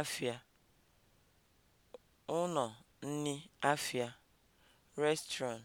afịa ụnọ nni afịa (restaurant)